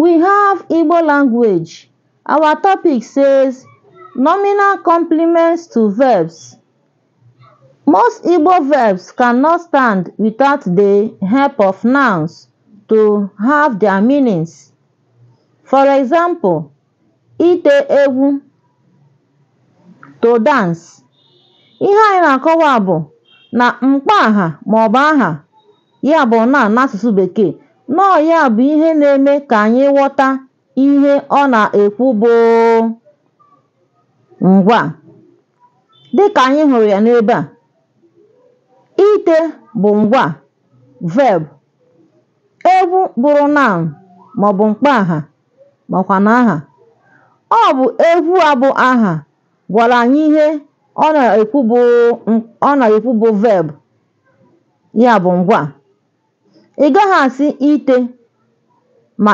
We have Igbo language. Our topic says nominal complements to verbs. Most Igbo verbs cannot stand without the help of nouns to have their meanings. For example, ite ewu to dance. Ihe anyị na-akọwa bụ na mkpa aha maọbụ aha ya bụ na n'asụsụ bekee Nnọọ ya bụ ihe na eme ka anyị ghọta ihe ọ na ekwu bụ ngwa, dị anyị hụrụ ya n'ebe a. Ite bụ ngwa (verb), egwu bụrụ noun maọbụ makwa na aha). Ọ bụ egwu a bụ aha gwara anyị ihe ọ na-ekwu bụ verb (ngwa). ị gaghị asị ite ma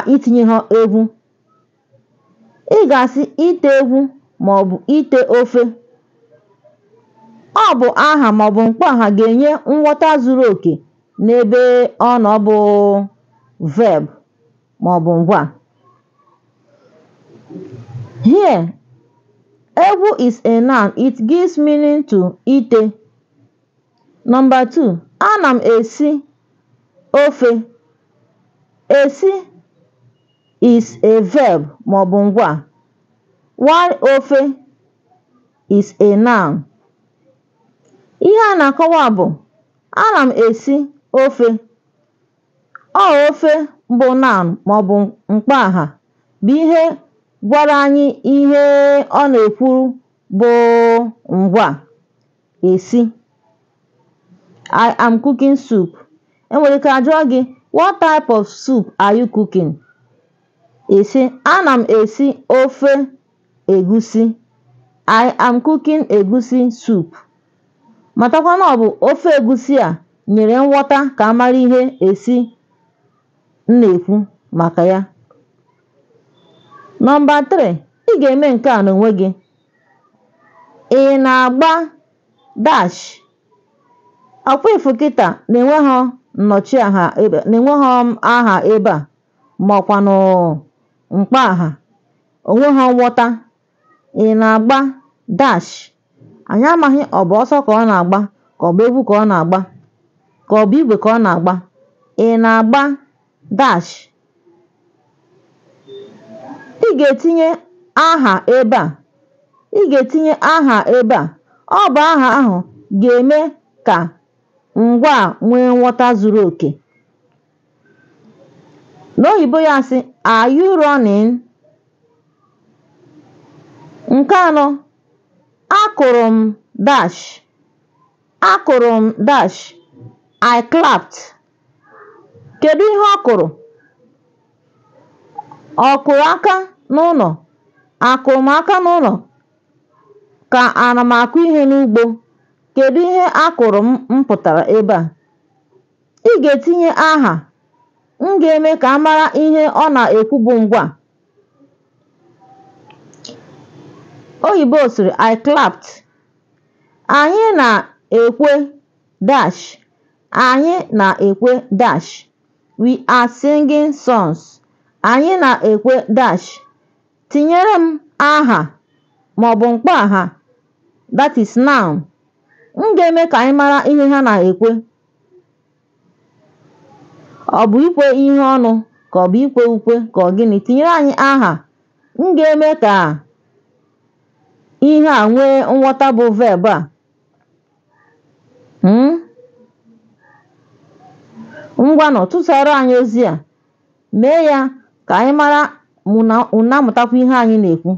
ha egwu ị ga-asị ite egwu maọbụ ite ofe ọ bụ aha maọbụ mkpọaha ga-enye nghọta zuru oke n'ebe nọ bụ verb maọbụ ngwa here egwu is a noun it gives meaning to ite number two ana m esi Ofe. Esi is a verb maọbụ ngwa wari ofe is a noun. Ihe a na-akọwa bụ ana m esi ofe. Ọ ofe bụ noun maọbụ mkpaaha bụ ihe gwara anyị ihe ọ na-ekwuru bụ ngwa (esi). I am cooking soup. enwere ike ajụọ gị what type of soup are you cooking esi ana m esi ofe egusi i am cooking egusi soup matakwa na ọ bụ ofe egusi a nyere nghọta ka amara ihe esi m na-ekwu maka ya nọmba 3 ị ga-eme nke a n'onwe gị ị na-agba dash ọkwa ifu kịta na-enwe nnọchiaha ebe na enweghị aha ebe a maọkwanụ mkpa aha onweghi nghọta ị na-agba dash anyị amaghị ọ bụ ọsọ ka ọ na-agba ka ọ bụ egwu ka ọ na-agba ka ọ bụ igwe ka ọ na-agba ị na-agba dash ị ga-etinye aha ebe a ị ga-etinye aha ebe a ọ bụ aha ahụ ga-eme ka ngwa nwee nghọta zuru oke n'oyibo ya sị are you running nke anọ akụrụ m dash akụrụ m dash I clapped kedu ihe ọ kụrụ ọ kụrụ aka n'ụlọ akụrụ m aka n'ụlọ ka ana m akụ ihe n'ugbo kedu ihe akụrụ m m pụtara ebe a? Ị ga-etinye aha, m ga-eme ka mara ihe ọ na-ekwu bụ ngwa. “I clapped, anyị na-ekwe dash anyị na-ekwe dash we are singing songs, anyị na-ekwe dash tinyere m aha aha that is noun. m ga-eme ka anyị mara ihe ha na-ekwe ọ bụ ikwe ihe ọnụ ka ọ bụ ikwe ukwe ka ọ gịnị tinyere anyị aha m ga-eme ka ihe a nwee nghọta bụ verb a hmm? ngwa nọ tụsara anyị ozi a mee ya ka anyị mara ma amụtakwa ihe anyị na-ekwu